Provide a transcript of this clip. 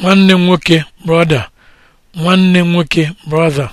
nwanne nwoke brọda nwanne nwoke brother